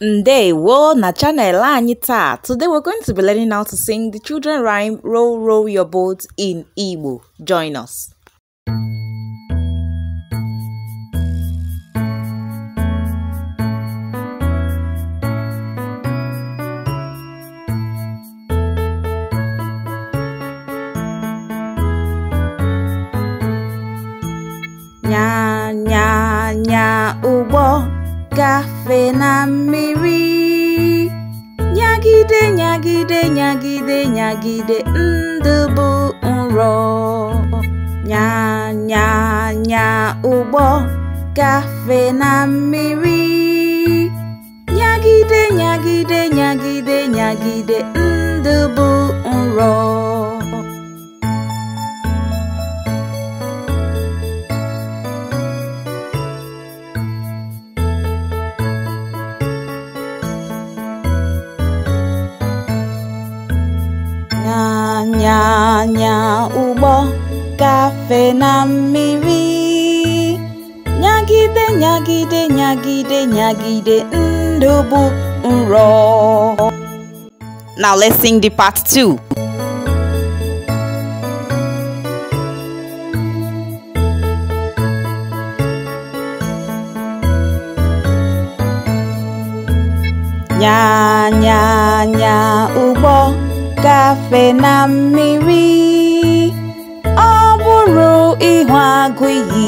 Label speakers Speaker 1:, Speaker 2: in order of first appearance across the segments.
Speaker 1: Ndewo na channel anyị Today we're going to be learning how to sing the children rhyme Row Row Your Boat in Igbo. Join us. Yeah. gafe na mmiri nyagide nyagide nyagide nyagide ndụ bụ nrọ nyanya nya ụgbọ gafe na mmiri nyagide nyagide nyagide nyagide nya nya ubo kafe namiwi nyagide nyagide nyagide nyagide ndobu nro Now let's sing the part two. Nya nya nya ubo gafe na mmiri ọ bụrụ ịhụ agụ iyi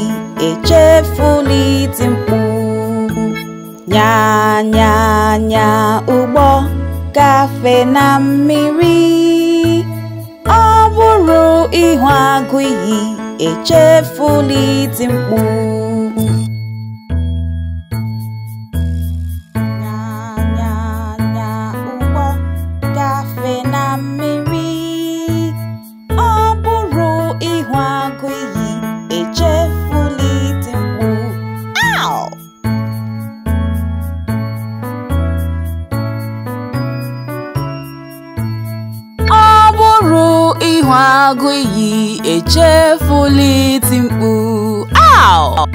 Speaker 1: echefula iti mkpu nyanyanya ụgbọ gafe na mmiri ọ bụrụ ịhụ agụ iyi echefula iti mkpu agụiyi echefula iti mkpu aw